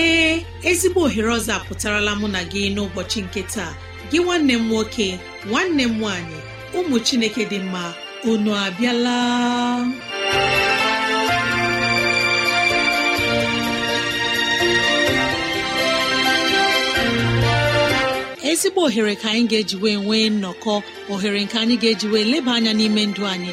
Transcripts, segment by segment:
ee ezigbo ohere ọzọ apụtarala mụ na gị n'ụbọchị nke taa gị nwanne m nwoke nwanne m nwaanyị ụmụ chineke dị mma unu abịala ezigbo ohere ka anyị ga-eji wee nwee nnọkọ ohere nke anyị ga-eji wee leba anya n'ime ndụ anyị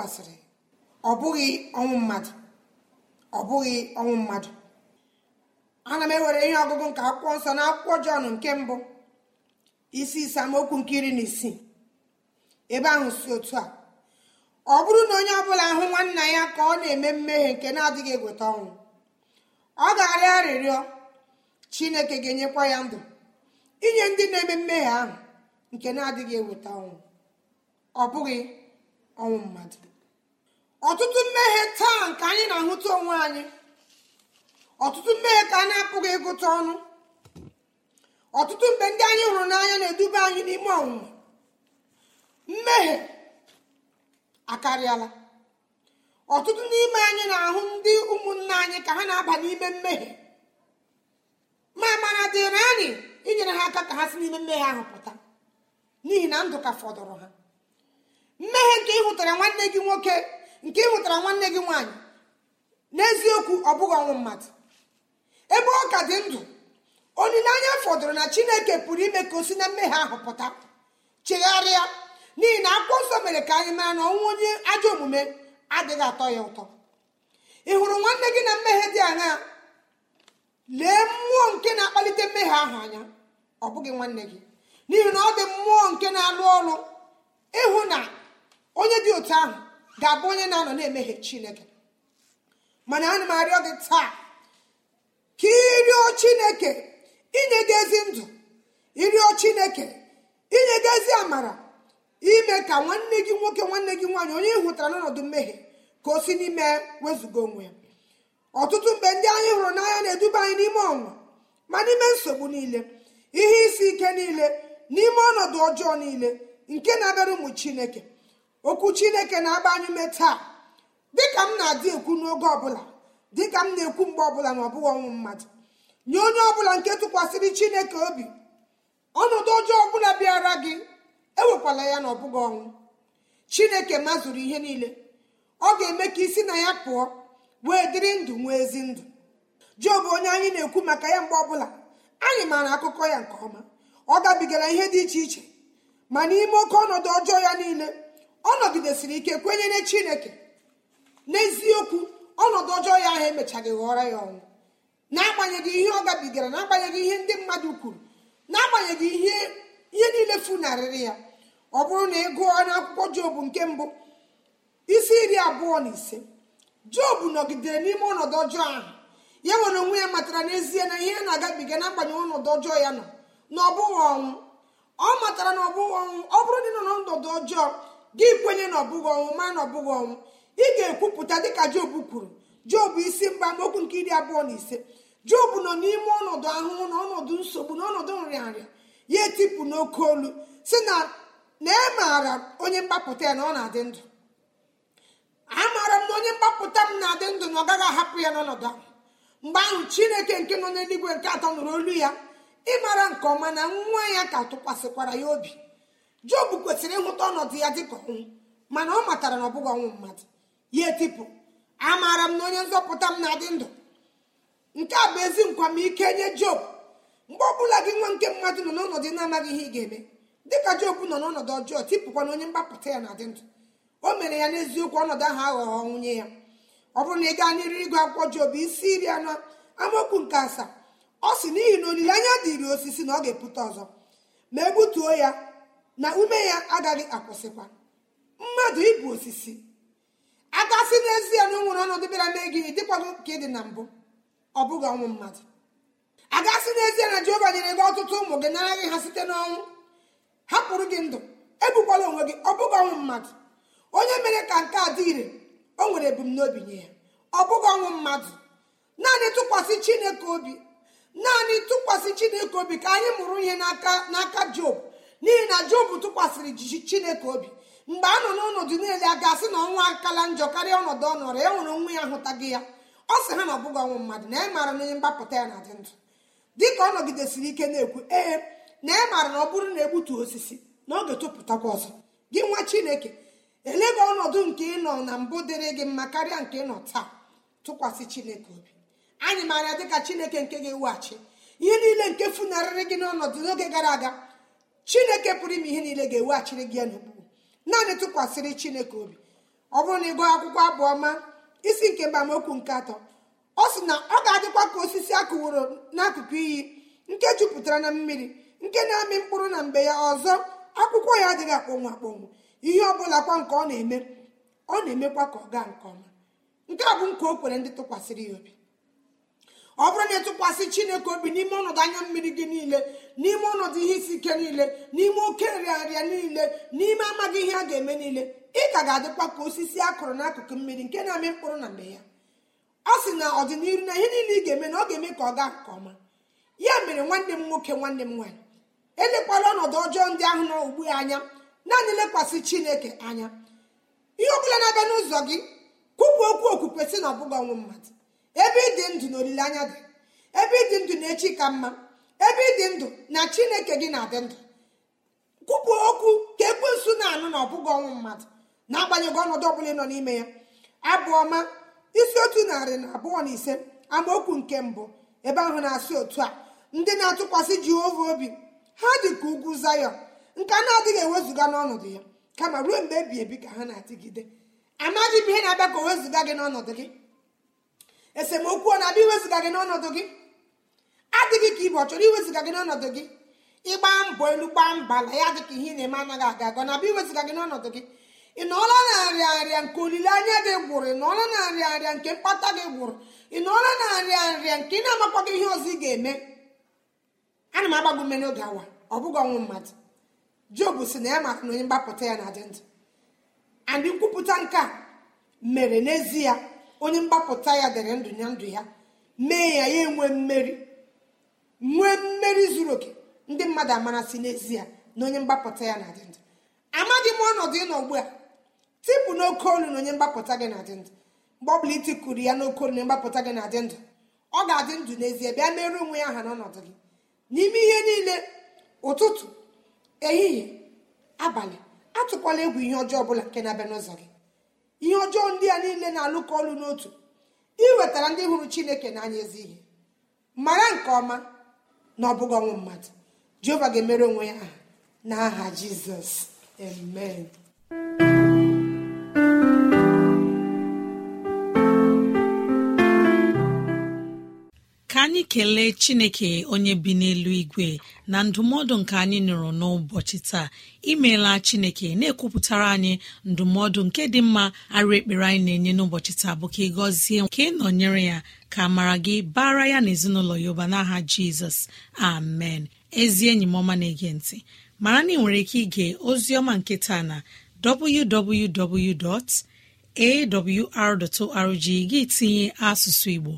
ọ bụghị ọnwụ mmadụ ọ bụghị ọnwụ mmadụ ana m ewere ihe ọgụgụ nke akwụkwọ nsọ na akwụkwọ jọn nke mbụ isi isamokwu nke iri na isii ebe ahụ si otu a ọ bụrụ na onye ọbụla hụ nwanna ya ka ọ na-eme mmehie nke na-adịghị egweta ọnwụ ọ ga-arịọ arịrịọ chineke ga-enyekwa ya ndụ inye ndị na-eme mmehie ahụ nke na-adịghị eweta ọnwụ ọ bụghị ọnwụ mmadụ ọtụtụ mmehie taa nke anyị na-ahụta onwe anyị ọtụtụ mmehie ka a na-apụghị ịgụta ọnụ ọtụtụ mgbe ndị anyị hụrụ n'anya na-eduba anyị n'ime ọnwụnwa mmehie akarịala ọtụtụ n'ime anyị na-ahụ ndị ụmụnna anyị ka ha na-aba n'ime mmehie ma mara dịrị anyị inyere ha aka ka ha si n'ime mmehie ahụ pụta n'ihi na ndụ ka fọdụrụ ha mmehie nke ị hụtara nwanne gị nwoke nke ị nwetara nwanne gị nwaanyị n'eziokwu ọ bụghị ọnwụ mmadụ ebe ọ ka dị ndụ olileanya fọdụrụ na chineke pụrụ ime ka o si na mmehie ahụ pụta chegharịa n'ihi na akwụkwọ nsọ mere ka anyị mara na ọnwụ onye ajọ omume adịghị atọ ya ụtọ ị hụrụ nwanne gị na mmehie dị anya lee mmụọ nke na-akpalite mmehie ahụ anya ọ bụghị nwanne gị n'ihi na ọ dị mmụọ nke na-alụ ọrụ ịhụ na onye dị otu ahụ ga-abụ onye na-anọ na emeghe chineke mana ana m arịọ gị taa ka ịrịọ chineke inyegezi ndụ ịrịọ chineke inyegezi amara ime ka nwanne gị nwoke nwanne gị nwaanyị onye ị hụtara n'ọnọdụ mmehie ka o si n'ime wezụga onwe ya ọtụtụ mgbe ndị anyị hụrụ n'anya na-eduba anyị n'ime ọnwa ma n'ime nsogbu niile ihe isi ike niile n'ime ọnọdụ ọjọọ niile nke na-abịara ụmụ chineke okwu chineke na-agba anyị ume taa dịka m na-adị ekwu n'oge ọbụla dịka m na-ekwu mgbe ọbụla na ọbụghị ọnwụ mmadụ nye onye ọbụla nke tụkwasịrị chineke obi ọnọdụ ọjọọ ọbụla bịara gị ewekwala ya na ọbụghị ọnwụ chineke mazụrụ ihe niile ọ ga-eme ka isi na ya pụọ wee dịrị ndụ nwee ezi ndụ job onye anyị na-ekwu maka ya mgbe ọbụla anyị maara akụkọ ya nke ọma ọ gabigara ihe dị iche iche ma n'ime oke ọnọdụ ọjọọ ya niile ọ nọgidesịrị ike kwenyere chineke n'eziokwu ọnọdụ ọjọọ ya ahụ emechaghị ghọrọ ya ọnwụ n'agbanyeghị ihe ọ gabigara n'agbanyeghị ihe ndị mmadụ kwuru n'agbanyeghị ihe ihe niile funarịrị ya ọ bụrụ na ị gụọ n'akwụkwọ jobu nke mbụ isi iri abụọ na ise jobu nọgidere n'ime ọnọdụ ọjọọ ahụ ya nwere onwe ya matara n'ezie na ihe na-agabiga n'agbanyeghị ọnọdụ ọjọọ ya nọ na ọbụghị ọnwụ ọ matara na ọ ọnwụ ọ bụrụ na ị nọ n'ọnọdụ ọjọọ gị kwenye na ọbụghị ọnwụ ma na ọbụghị ọnwụ ị ga-ekwupụta dịka job kwuru job isi mba amaokwu nke iri abụọ na ise job nọ n'ime ọnọdụ ahụhụ na ọnọdụ nsogbu na ọnọdụ nrịanrịa ya etipụ n'oke olu si na na e maara onye mgbapụta ya na ọ na-adị ndụ amaara m na onye mgbapụta m na-adị ndụ na ọ gaghị ahapụ ya n'ọnọdụ ahụ mgbe ahụ chineke nke nọ n'eluigwe nke atọ nụrụ olu ya ịmara nke ọma na nwa ya ka tụkwasịkwara ya obi job kwesịrị ịhụta ọnọdụ ya dịka ọnwụ mana ọ matara na ọ bụghị ọnwụ mmadụ ya etipụ amaara m na onye nzọpụta m na-adị ndụ nke a bụ ezi nkwamike nye Jobu mgbe ọ bụla gị nwa nke mmadụ nọ n'ọnọdụ na-amaghị ihe ị ga-eme dịka job nọ n'ọnọdụ ọjọọ tipụkwa na onye mgbapụta ya na-adị ndụ o mere ya n'eziokwu ọnọdụ ahụ aghọghọ nwunye ya ọ bụrụ na ị gaa n'iri ịgụ akwụkwọ job isi iri anọ amaokwu nke asaa ọ sị n'ihi na olileanya dịịrị osisi na ọ ga-epụta ọzọ ma egbutuo ya na ume ya agaghị akwụsịkwa mmadụ ịbụ osisi agasị n'ezie na o nwere ọnọdụ bịara mee gị dịkwago nke dị na mbụ ọ bụghị ọnwụ mmadụ agasị n'ezie na jehova nyere gị ọtụtụ ụmụ gị nara gị ha site n'ọnwụ hapụrụ gị ndụ ebukwala onwe gị ọ bụghị ọnwụ mmadụ onye mere ka nke a dị ire o nwere ebumnobi nye ya ọ bụghị ọnwụ mmadụ naanị tụkwasị chineke obi naanị tụkwasị chineke obi ka anyị mụrụ ihe n'aka n'aka job n'ihi na jobu tụkwasịrị jiji chineke obi mgbe a nọ n'ọnọdụ niile a ga-asị na ọnwa akala njọ karịa ọnọdụ ọ nọrọ ya e nwere onwe ya hụtaghị ya ọ sị ha na ọbụghị ọnwụ mmadụ na ị e maara na onye mgbapụta ya na-adị ndụ dịka ọ nọgidesiri ike na-ekwu ee na ị e maara na ọ bụrụ na egbutu osisi na oge tụpụtakwa ọzọ gị nwa chineke elega ọnọdụ nke ịnọ na mbụ dịrị gị mma karịa nke ịnọ taa tụkwasị chineke obi anyị maara dịka chineke nke ga-eweghachi ihe niile nke funarịrị gị n'ọnọdụ n'oge gara aga chineke pụrụ ime ihe niile ga-eweghachiri gị ya n'okpuru naanị tụkwasịrị chineke obi ọ bụrụ na ị gụọ akwụkwọ abụọ ma isi nke mbamokwu nke atọ ọ sị na ọ ga-adịkwa ka osisi akụworo n'akụkụ iyi nke jupụtara na mmiri nke na-amị mkpụrụ na mgbe ya ọzọ akwụkwọ ya adịghị akpọnwụ akpọnwụ ihe ọ bụla kwa nke ọ na-eme ọ na-emekwa ka ọ gaa nke ọma nke a bụ nke o kwere ndị tụkwasịrị ya obi ọ bụrụ na ịtụkwasị chineke obi n'ime ọnọdụ anya mmiri gị niile n'ime ọnọdụ ihe isi ike niile n'ime oke nrịarịa niile n'ime amaghị ihe a ga-eme niile ị ka ga-adịkwa ka osisi a kụrụ n'akụkụ mmiri nke na-amị mkpụrụ na mgbe ya ọ sị na ọdịnihu na ihe niile ị ga-eme na ọ ga-eme ka ọ gaa nke ọma ya mere nwanne m nwoke nwanne m nwaanyị elekwala ọnọdụ ọjọọ ndị ahụ nọ ugbu ya anya naanị lekwasị chineke anya ihe ọ bụla na-aga n'ụzọ gị kwupụ okwu okwukwe sị na ọ bụghị ọnwụ mmadụ ebe ịdị ndụ na olileanya dị ebe ịdị ndụ na echi ka mma ebe ịdị ndụ na chineke gị na-adị ndụ kwupụ okwu ka ekwensu na-anụ na ọbụghị ọnwụ mmadụ na-agbanyeghị ọnọdụ ọ bụla nọ n'ime ya abụọma isi otu narị na abụọ na ise amaokwu nke mbụ ebe ahụ na-asị otu a ndị na-atụkwasị jehova obi ha dị ka ugwu zayọ nke a na-adịghị ewezụga n'ọnọdụ ya kama ruo mgbe ebi ebi ka ha na-adịgide amaghị m ihe na-abịa ka o wezụga gị n'ọnọdụ gị esemokwu ọ na-abịa gị n'ọnọdụ gị adịghị ka ibe ọ chọrọ iwezụga gị n'ọnọdụ gị ịgba mbọ elu gba mba na ya dịka ka ihe ị na-eme anaghị aga aga na abịa iwezụga gị n'ọnọdụ gị ị nọọla na nrịa nrịa nke olileanya gị gwụrụ ị nọọla na nrịa nrịa nke mkpata gị gwụrụ ị nọọla na nrịa nrịa nke ị na-amakwa gị ihe ọzọ ị ga-eme ana m agba gị n'oge awa ọ bụghị ọnwụ mmadụ job si na ya maka na onye mgbapụta ya na adị ndụ andị nkwupụta nke a mere n'ezie onye mgbapụta ya dere ndụ ya ndụ ya mee ya ya enwe mmeri nwee mmeri zuru oke ndị mmadụ si n'ezie na onye mgbapụta ya na-adị ndụ amaghị m ọnọdụ ị nọ ugbu a tipụ n'oke olu na onye mgbapụta gị na-adị ndụ mgbe ọ bụla itikuru ya n'oke olu na mgbapụta gị na-adị ndụ ọ ga-adị ndụ n'ezie bịa mere onwe ya aha n'ọnọdụ gị n'ime ihe niile ụtụtụ ehihie abalị atụkwala egwu ihe ọjọọ ọbụla nke na-abịa n'ụzọ gị ihe ọjọọ ndị a niile na-alụkọ ọlụ n'otu wetara ndị hụrụ chineke n'anya ezi ihe mara nke ọma na ọ bụghị ọnwụ mmadụ jehova ga-emere onwe ya aha n'aha jizọs amen anyị kelee chineke onye bi n'elu igwe na ndụmọdụ nke anyị nụrụ n'ụbọchị taa imeela chineke na-ekwupụtara anyị ndụmọdụ nke dị mma arụ ekpere anyị na-enye n'ụbọchị taa bụ ka ị gọzie ka ị nọnyere ya ka mara gị bara ya na ezinụlọ ya ụba n'aha jizọs amen ezi enyi m ọma na-ege ntị mara na ị nwere ike ige ozi ọma nke taa na www.awr.org gị tinye asụsụ igbo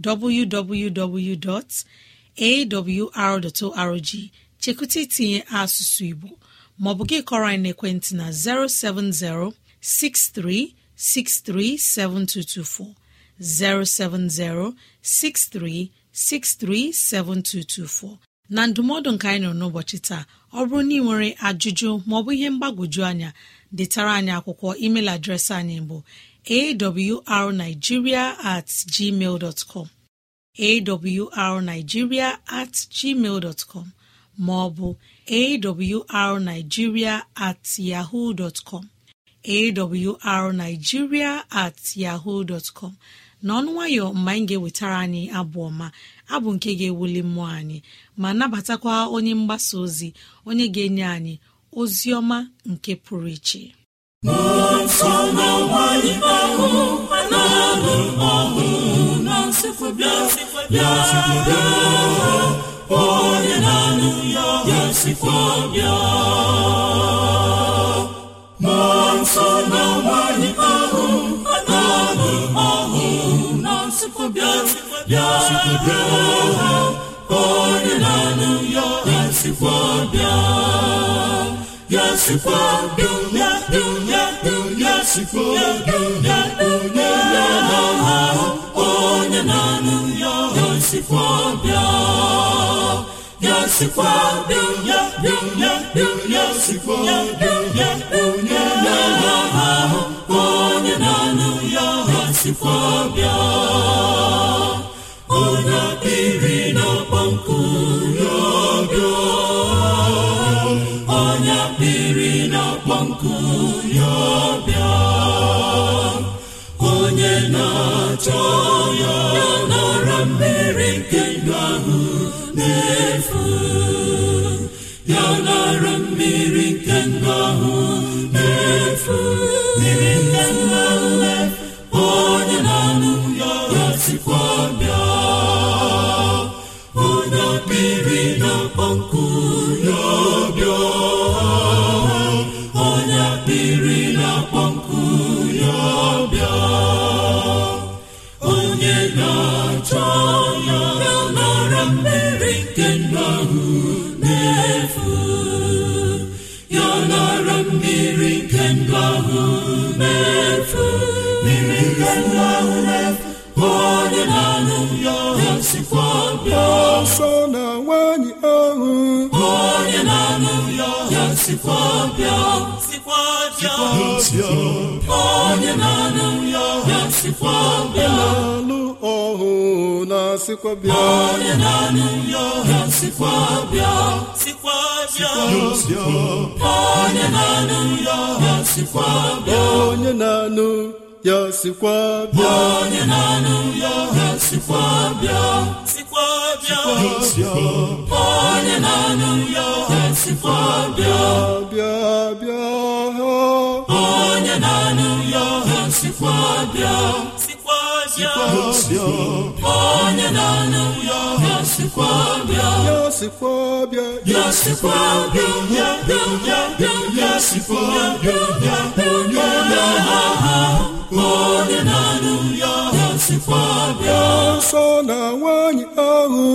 www.awr.org chekụta itinye asụsụ Igbo maọbụ gị kọrọ anyị n'ekwentị na 070 7224 070 7224. na ndụmọdụ nke anyị nọ n'ụbọchị taa ọ bụrụ na ị nwere ajụjụ maọbụ ihe mgbagwoju anya detara anyị akwụkwọ email adreesị anyị bụ awrnigeria at gmail com awrnigeria at gmail com maọbụ awrnigeria at yahoo com awrnigeria at yahoo com n'ọnụ nwayọ mgbe anyị ga-ewetara anyị abụ ọma abụ nke ga-ewuli mmụọ anyị ma nabatakwa onye mgbasa ozi onye ga-enye anyị ozi ọma nke pụrụ iche onye na-anụ ya ga bịa. ya nsọ na ya ahụ a na-anụ bịa ya nsikwabịa bịasikwabịa ya na-anụ ya ga-esikwabịa ya esikwabịa onye na-anụ ya ha sikwa bịa ya nara mmiri nke ndụ ọhụụ na-alụ ọhụ na sikwa bịa onye na-anụ ya sikwa bịa onye na-anụ ya sikwa bịa onye na-anụ ya sikwa bịa onye na-anụ ya ya ya ya na-aha onye ya nwanyị ahụ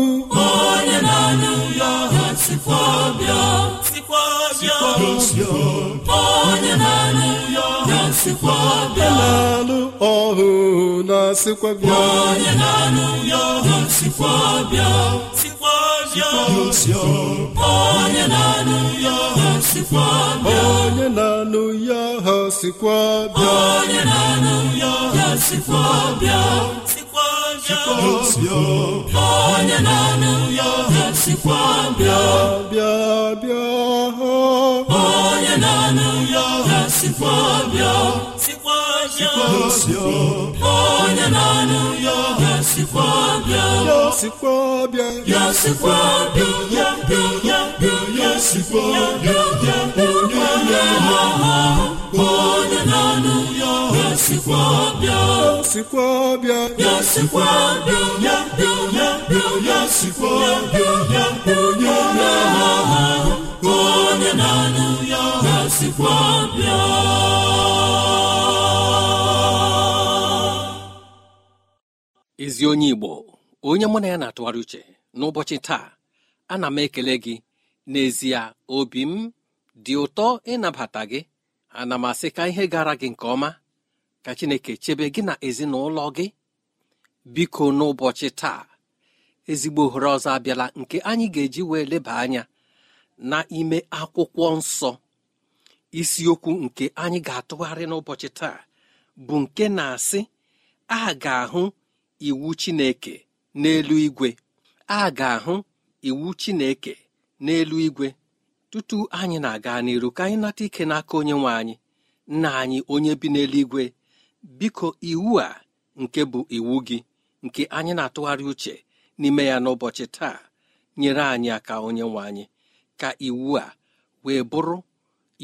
onye na na-alụ ọhụ na sikwa bịa onye na-alụ ya ọhụ sikwa bịa sikwa bịa onye na-alụ ya ọhụ sikwa bịa onye na-alụ ya ọhụ sikwa bịa onye na-alụ ya ọhụ sikwa bịa sikwa bịa onye na-alụ ya ọhụ sikwa bịa bịa bịa onye na-alụ ya ọhụ sikwa bịa onye na-anụ ya sikwa bịa ya sikwa bịa ya sikwa bịa ya bịa ya bịa ya sikwa bịa ya onye na ya onye na-anụ ya sikwa bịa sikwa bịa ya sikwa bịa ya bịa ya bịa ya sikwa bịa ya onye na ya onye na-anụ ya sikwa bịa ezi onye igbo onye mụ na ya na-atụgharị uche n'ụbọchị taa ana m ekele gị n'ezie obi m dị ụtọ ịnabata gị ana m asị ka ihe gara gị nke ọma ka chineke chebe gị na ezinụlọ gị biko n'ụbọchị taa ezigbo ohere ọzọ abịala nke anyị ga-eji wee leba anya na ime akwụkwọ nsọ isiokwu nke anyị ga-atụgharị n'ụbọchị taa bụ nke na-asị a ga-ahụ iwu chineke n'elu igwe a ga-ahụ iwu chineke n'elu igwe tutu anyị na-aga n'iru ka anyị nata ike n'aka onye nwe anyị nna anyị onye bi n'eluigwe biko iwu a nke bụ iwu gị nke anyị na-atụgharị uche n'ime ya n'ụbọchị taa nyere anyị aka onye nwe anyị ka iwu a wee bụrụ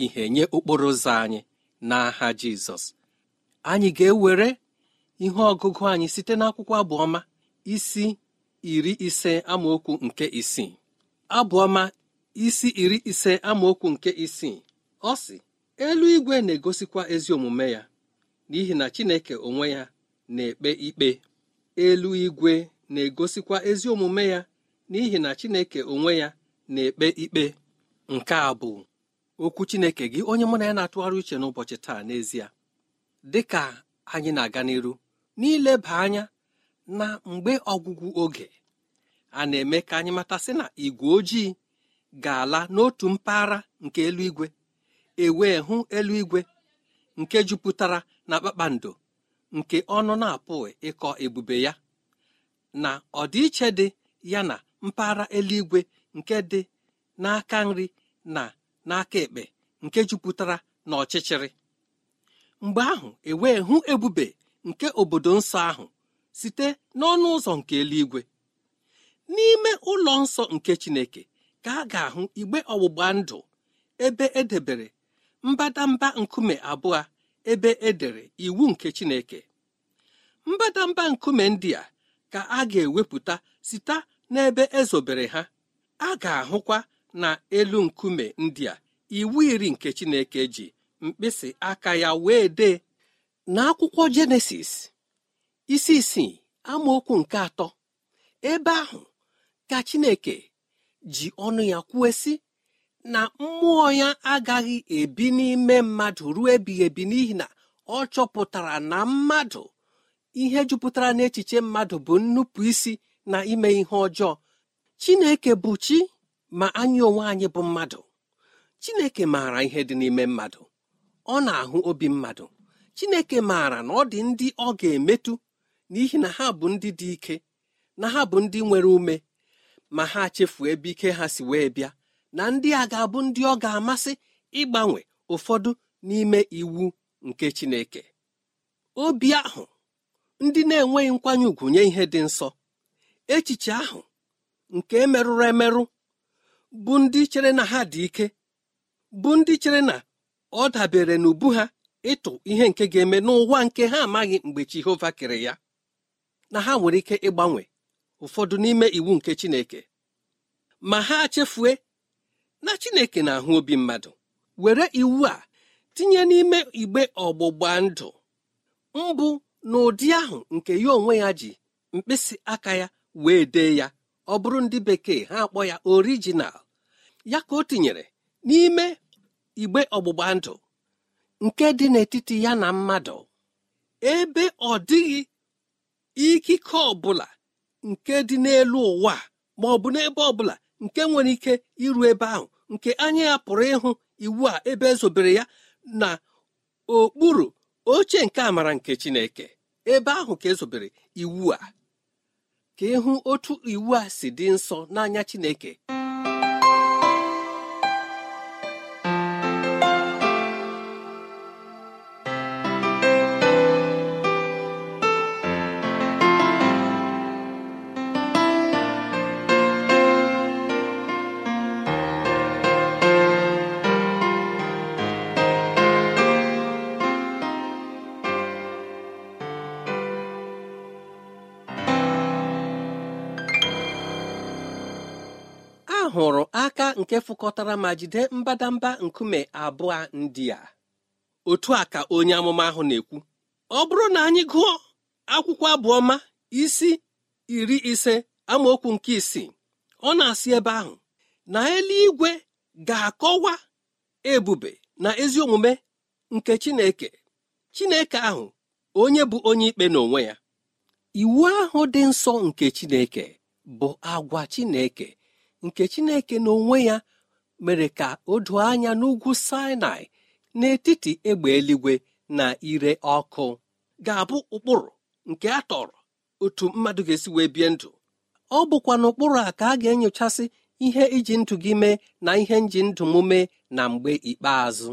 ihe nye okporo ụzọ anyị n'aha Jizọs anyị ga-ewere ihe ọgụgụ anyị site n'akwụkwọ abụọma isi iri ise amaokwu nke isii abụọma isi iri ise amaokwu nke isii ọ sị eluigwe na-egosikwa ezi omume ya n'ihi na Chineke onwe ya na-ekpe ikpe igwe na-egosikwa ezi omume ya n'ihi na Chineke onwe ya na-ekpe ikpe nke a bụ okwu Chineke gị onye mụ na ya na-atụgharị uche n'ụbọchị taa n'ezie dị ka anyị na-aga n'iru n'ileba anya na mgbe ọgwụgwụ oge a na-eme ka anyị matasị na igwe ojii ga-ala n'otu mpaghara nke eluigwe ewee hụ eluigwe nke jupụtara na kpakpando nke ọnụ na-apụghị ịkọ ebube ya na ọdịiche dị ya na mpaghara eluigwe nke dị n'aka nri na n'aka ekpe nke jupụtara na ọchịchịrị mgbe ahụ ewee hụ ebube nke obodo nsọ ahụ site n'ọnụ ụzọ nke eluigwe n'ime ụlọ nsọ nke Chineke ka a ga-ahụ igbe ọgbụgba ndụ ebe edebere mbadamba nkume abụọ ebe edere iwu nke Chineke mbadamba nkume ndị a ka a ga-ewepụta site n'ebe ezobere ha a ga-ahụkwa na elu nkume ndị a iwu iri nke Chineke ji mkpịsị aka ya wee dee n'akwụkwọ jenesis isi isii amaokwu nke atọ ebe ahụ ka chineke ji ọnụ ya kwuo sị na mmụọ ya agaghị ebi n'ime mmadụ ruo ebighị ebi n'ihi na ọ chọpụtara na mmadụ ihe jupụtara n'echiche mmadụ bụ nnupụ isi na ime ihe ọjọọ chineke bụ chi ma anyị onwe anyị bụ mmadụ chineke maara ihe dị n'ime mmadụ ọ na-ahụ obi mmadụ chineke maara na ọ dị ndị ọ ga-emetụ n'ihi na ha bụ ndị dị ike na ha bụ ndị nwere ume ma ha chefuo ebe ike ha si wee bịa na ndị a ga-abụ ndị ọ ga-amasị ịgbanwe ụfọdụ n'ime iwu nke chineke obi ahụ ndị na-enweghị nkwanye ùgwù nye ihe dị nsọ echiche ahụ nke emerụrụ emerụ bụ ndị chere na ha dị ike bụ ndị chere na ọ dabere n'ubu ha ịtụ ihe nke ga-eme n'ụwa nke ha amaghị mgbe Jehova kere ya na ha nwere ike ịgbanwe ụfọdụ n'ime iwu nke Chineke ma ha chefue na Chineke na-ahụ obi mmadụ were iwu a tinye n'ime igbe ọgbụgba ndụ mbụ n'ụdị ahụ nke ya onwe ya ji mkpịsị aka ya wee dee ya ọ bụrụ ndị bekee ha akpọ ya orijinal ya ka o tinyere n'ime igbe ọgbụgba ndụ nke dị n'etiti ya na mmadụ ebe ọ dịghị ikike ọbụla nke dị n'elu ụwa ma ọ bụ n'ebe ọbụla nke nwere ike iru ebe ahụ nke anya ya pụrụ ịhụ iwu a ebe ezobere ya na okpuru oche nke amara nke Chineke ebe ahụ ka ezobere iwu a ka ịhụ otu iwu a si dị nsọ n'anya Chineke hụrụ aka nke fụkọtara ma jide mbadamba nkume abụọ ndị a otu a ka onye amụma ahụ na-ekwu ọ bụrụ na anyị gụọ akwụkwọ abụọma isi iri ise amaokwu nke isii ọ na-asị ebe ahụ na eluigwe ga-akọwa ebube na ezi omume nke Chineke Chineke ahụ onye bụ onye ikpe n'onwe ya iwu ahụ dị nsọ nke Chineke bụ agwa Chineke nke chineke n'onwe ya mere ka o doo anya n'ugwu sinai n'etiti egbe eluigwe na ire ọkụ ga-abụ ụkpụrụ nke a tọrọ otu mmadụ ga-esi wee bie ndụ ọ bụkwa n'ụkpụrụ a ka a ga-enyochasị ihe iji ndụ gị mee na ihe nji ndụ m mee na mgbe ikpeazụ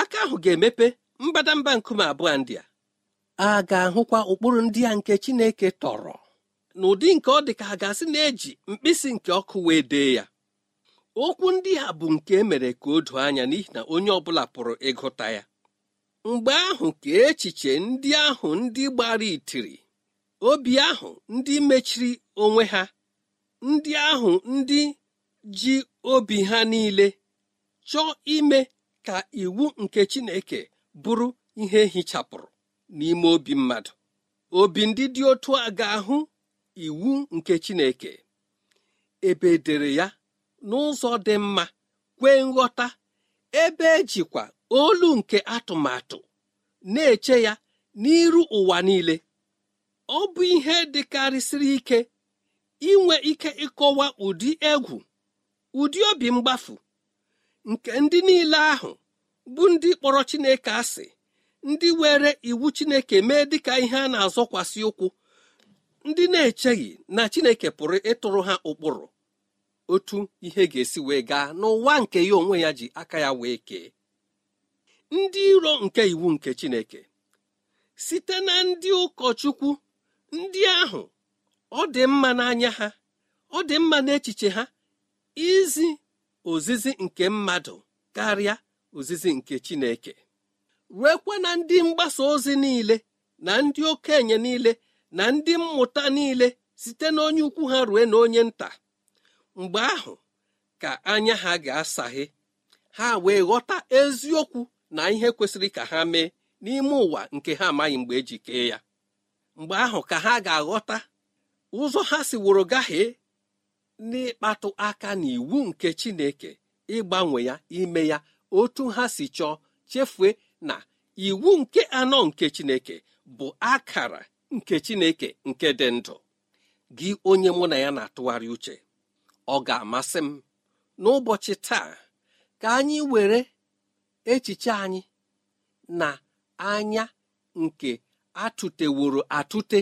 aka ahụ ga-emepe mbadamba nkume abụọ ndị a a ga-ahụkwa ụkpụrụ ndị a nke chineke tọrọ n'ụdị nke ọ dị ka ha gasị na-eji mkpịsị nke ọkụ wee dee ya okwu ndị ha bụ nke emere ka o doo anya n'ihi na onye ọ bụla pụrụ ịgụta ya mgbe ahụ ka echiche ndị ahụ ndị gbara itiri obi ahụ ndị mechiri onwe ha ndị ahụ ndị ji obi ha niile chọọ ime ka iwu nke Chineke bụrụ ihe hichapụrụ n'ime obi mmadụ obi ndị dị otu a ga-ahụ iwu nke chineke ebe dere ya n'ụzọ dị mma kwee nghọta ebe ejikwa olu nke atụmatụ na-eche ya n'iru ụwa niile ọ bụ ihe dịkarịsịrị ike inwe ike ịkọwa ụdị egwu ụdị obi mgbafu nke ndị niile ahụ bụ ndị kpọrọ Chineke asị ndị were iwu Chineke mee dịka ihe a na-azọkwasị ụkwụ ndị na-echeghị na chineke pụrụ ịtụrụ ha ụkpụrụ otu ihe ga-esi wee gaa n'ụwa nke ya onwe ya ji aka ya wee kee ndị iro nke iwu nke chineke site na ndị ụkọchukwu ndị ahụ ọ dị mma n'anya ha ọ dị mma n'echiche ha izi ozizi nke mmadụ karịa ozizi nke chineke ruekwa na ndị mgbasa ozi niile na ndị okenye niile na ndị mmụta niile site n'onye ukwu ha rue na onye nta mgbe ahụ ka anya ha ga-asaghe ha wee ghọta eziokwu na ihe kwesịrị ka ha mee n'ime ụwa nke ha amaghị mgbe eji kee ya mgbe ahụ ka ha ga-aghọta ụzọ ha si wụrụ gaghee n'ịkpatụ aka n'iwu nke Chineke ịgbanwe ya ime ya otu ha si chọọ chefue na iwu nke anọ nke Chineke bụ akara nke chineke nke dị ndụ gị onye mụ na ya na-atụgharị uche ọ ga-amasị m n'ụbọchị taa ka anyị were echiche anyị na anya nke atụteworo atụte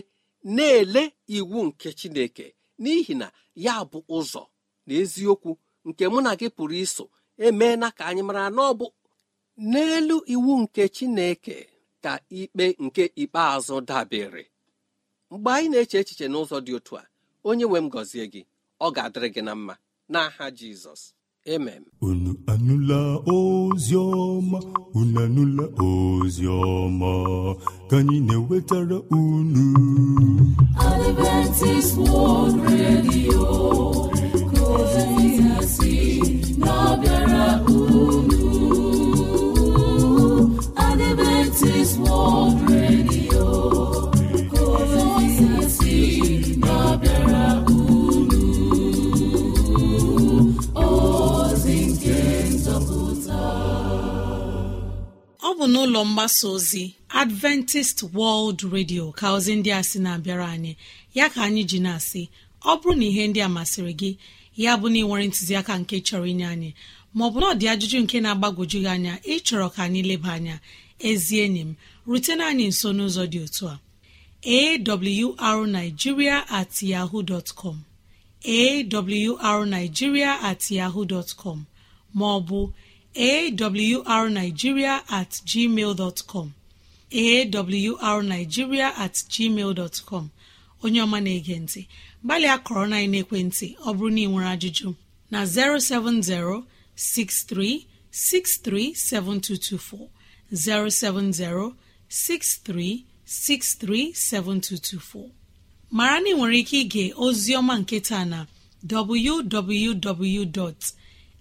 na-ele iwu nke chineke n'ihi na ya bụ ụzọ na eziokwu nke mụ na gị pụrụ iso emeela ka anyị mara na ọ bụ n'elu iwu nke chineke ka ikpe nke ikpeazụ dabere mgbe anyị na-eche echiche n'ụzọ dị otu a onye nwe m gọzie gị ọ ga-adịrị gị na mma n'aha Jizọs emem unu anụla ozi ọma unu anụla ozi ọma ka anyị na-ewetara unu Adventist World Radio ka ozi si na-abịara unu Adventist World Radio bụ n'ụlọ mgbasa ozi adventist world radio ka ozi ndị a sị na-abịara anyị ya ka anyị ji na-asị ọ bụrụ na ihe ndị a masịrị gị ya bụ na ịnwere ntụziaka nke chọrọ inye anyị maọbụ na ọ dị ajụjụ nke na agbagoju gị anya ịchọrọ ka anyị leba anya ezi enyi m rutena anyị nso n'ụzọ dị otu a arigiria at yahoo dot com at yahoo dot maọbụ awrnigeria at gmail awrnigeria at gmail dot onye ọma na-ege ntị gbalịa kọrọ na ekwentị ọ bụrụ na ị nwere ajụjụ na 070 63 7224 070 63 63 7224 mara na ị nwere ike ige ozi ọma nke taa na www.